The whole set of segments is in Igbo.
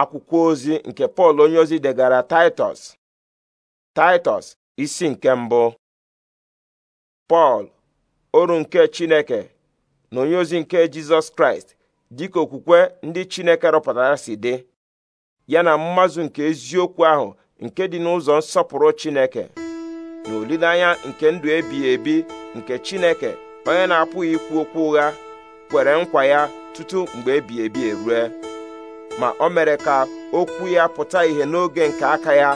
akwụkwọ ozi nke pọl onyeozi degara taịtọs taịtọs isi nke mbụ pọl oru nke chineke na onyeozi nke jizọs kraịst dịka okwukwe ndị chineke rụpụtara si dị ya na mmazụ nke eziokwu ahụ nke dị n'ụzọ nsọpụrụ chineke na olileanya nke ndụ ebighị ebi nke chineke onye na-apụghị ikwu okwu ụgha kwere nkwa ya tutu mgbe ebighị ebi erue ma o mere ka okwu ya pụta ìhè n'oge nke aka ya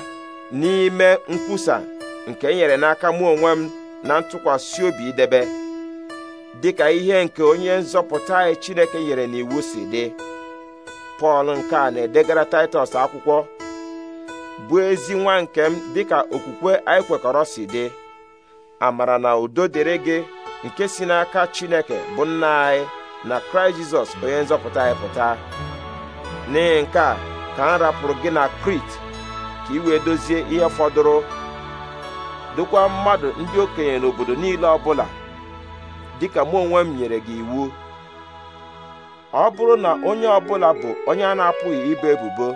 n'ime nkwusa nke e nyere n'aka mụ onwe m na ntụkwasị obi idebe dịka ihe nke onye nzọpụta anyị e Chineke nyere n'iwu si dị Pọl nke a na-edegara Taịtọs akwụkwọ bụ ezi nwa nke m dịka okwukwe anyị kwekọrọ si dị amara na udo dịrị gị nke si n'aka Chineke bụ nna anyị na Kraịst Jizọs onye nzọpụta anyị pụta n'ihi nke a ka m rapụrụ gị na krit ka ị wee dozie ihe fọdụrụ dokwa mmadụ ndị okenye n'obodo niile ọbụla dịka mụ onwe m nyere gị iwu ọ bụrụ na onye ọbụla bụ onye a na-apụghị ibe ebubo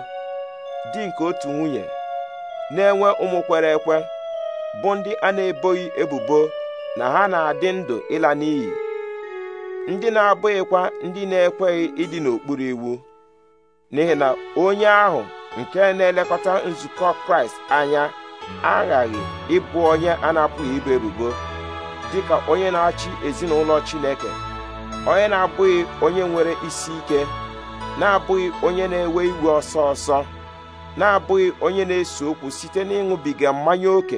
dị nke otu nwunye na-enwe ụmụ kwere ekwe bụ ndị a na-eboghị ebubo na ha na-adị ndụ ịla n'iyi ndị na-abụghịkwa ndị na-ekweghị ịdị n'okpuru iwu n'ihi na onye ahụ nke na-elekọta nzukọ kraịst anya aghaghị ịbụ onye a na-apụghị ibu ebubo dịka onye na-achị ezinụlọ chineke onye na-abụghị onye nwere isi ike na-abụghị onye na-ewe iwe ọsọ ọsọ na-abụghị onye na-ese okwu site n'ịṅụbiga mmanya ókè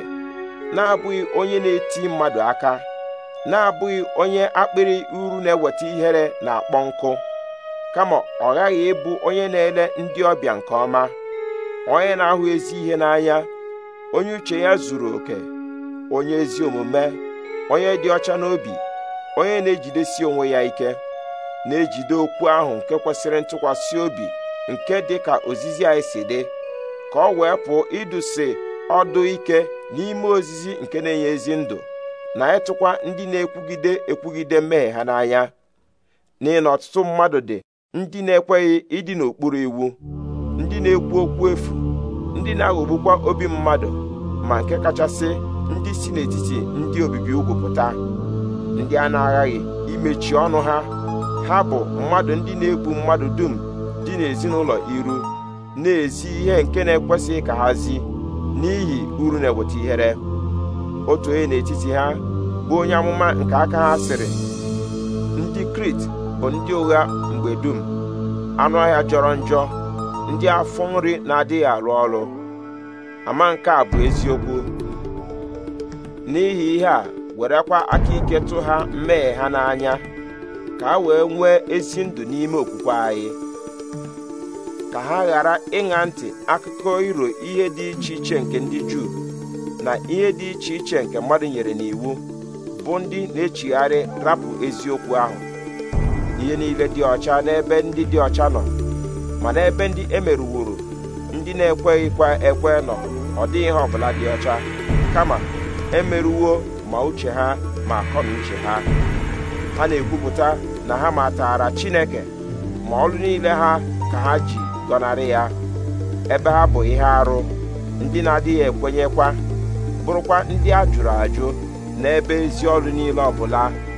na-abụghị onye na-eti mmadụ aka na-abụghị onye akpịrị uru na-eweta ihere na akpọ nkụ kama ọ ghaghị ịbụ onye na-ele ndị ọbịa nke ọma onye na-ahụ ezi ihe n'anya onye uche ya zuru oke onye ezi omume onye dị ọcha n'obi onye na-ejidesi onwe ya ike na-ejide okwu ahụ nke kwesịrị ntụkwasị obi nke dị ka ozizi anyị si dị ka ọ wee pụọ idusi ọdụ ike n'ime ozizi nke na-enye ezi ndụ na ịtụkwa ndị na-ekwugide ekwugide mmehie ha n'anya n'ihi na ọtụtụ mmadụ dị ndị na-ekweghị ịdị n'okpuru iwu ndị na-ekwu okwu efu ndị na-aghọgbukwa obi mmadụ ma nke kachasị ndị si n'etiti ndị obibi ugwu pụta ndị a na-aghaghị imechi ọnụ ha ha bụ mmadụ ndị na-egbu mmadụ dum dị n'ezinụlọ iru na-ezi ihe nke na-ekwesịghị ka ha zi n'ihi uru na-eweta ihere otu onye n'etiti ha bụ onye amụma nke aka ha sịrị ndị Krit bụ ndị ụgha mgbe dum anụ ọhịa jọrọ njọ ndị afọ nri na-adịghị arụ ọrụ ama nke a bụ eziokwu n'ihi ihe a werekwa aka ike tụ ha mmehie ha n'anya ka ha wee nwee ezi ndụ n'ime okwukwe anyị ka ha ghara ịṅa ntị akụkọ iro ihe dị iche iche nke ndị Juu na ihe dị iche iche nke mmadụ nyere n'iwu bụ ndị na-echigharị rapụ eziokwu ahụ ihe niile dị ọcha n'ebe ndị dị ọcha nọ mana ebe ndị emerụworo ndị na-ekweghịkwa ekwe nọ ọ dịghị ihe ọbụla dị ọcha kama emerụwo ma uche ha ma akọ uche ha ha na-ekwupụta na ha matara Chineke ma ọrụ niile ha ka ha ji gọnarị ya ebe ha bụ ihe arụ ndị na-adịghị ekwenyekwa bụrụkwa ndị a jụrụ ajụ n'ebe ezi ọrụ niile ọbụla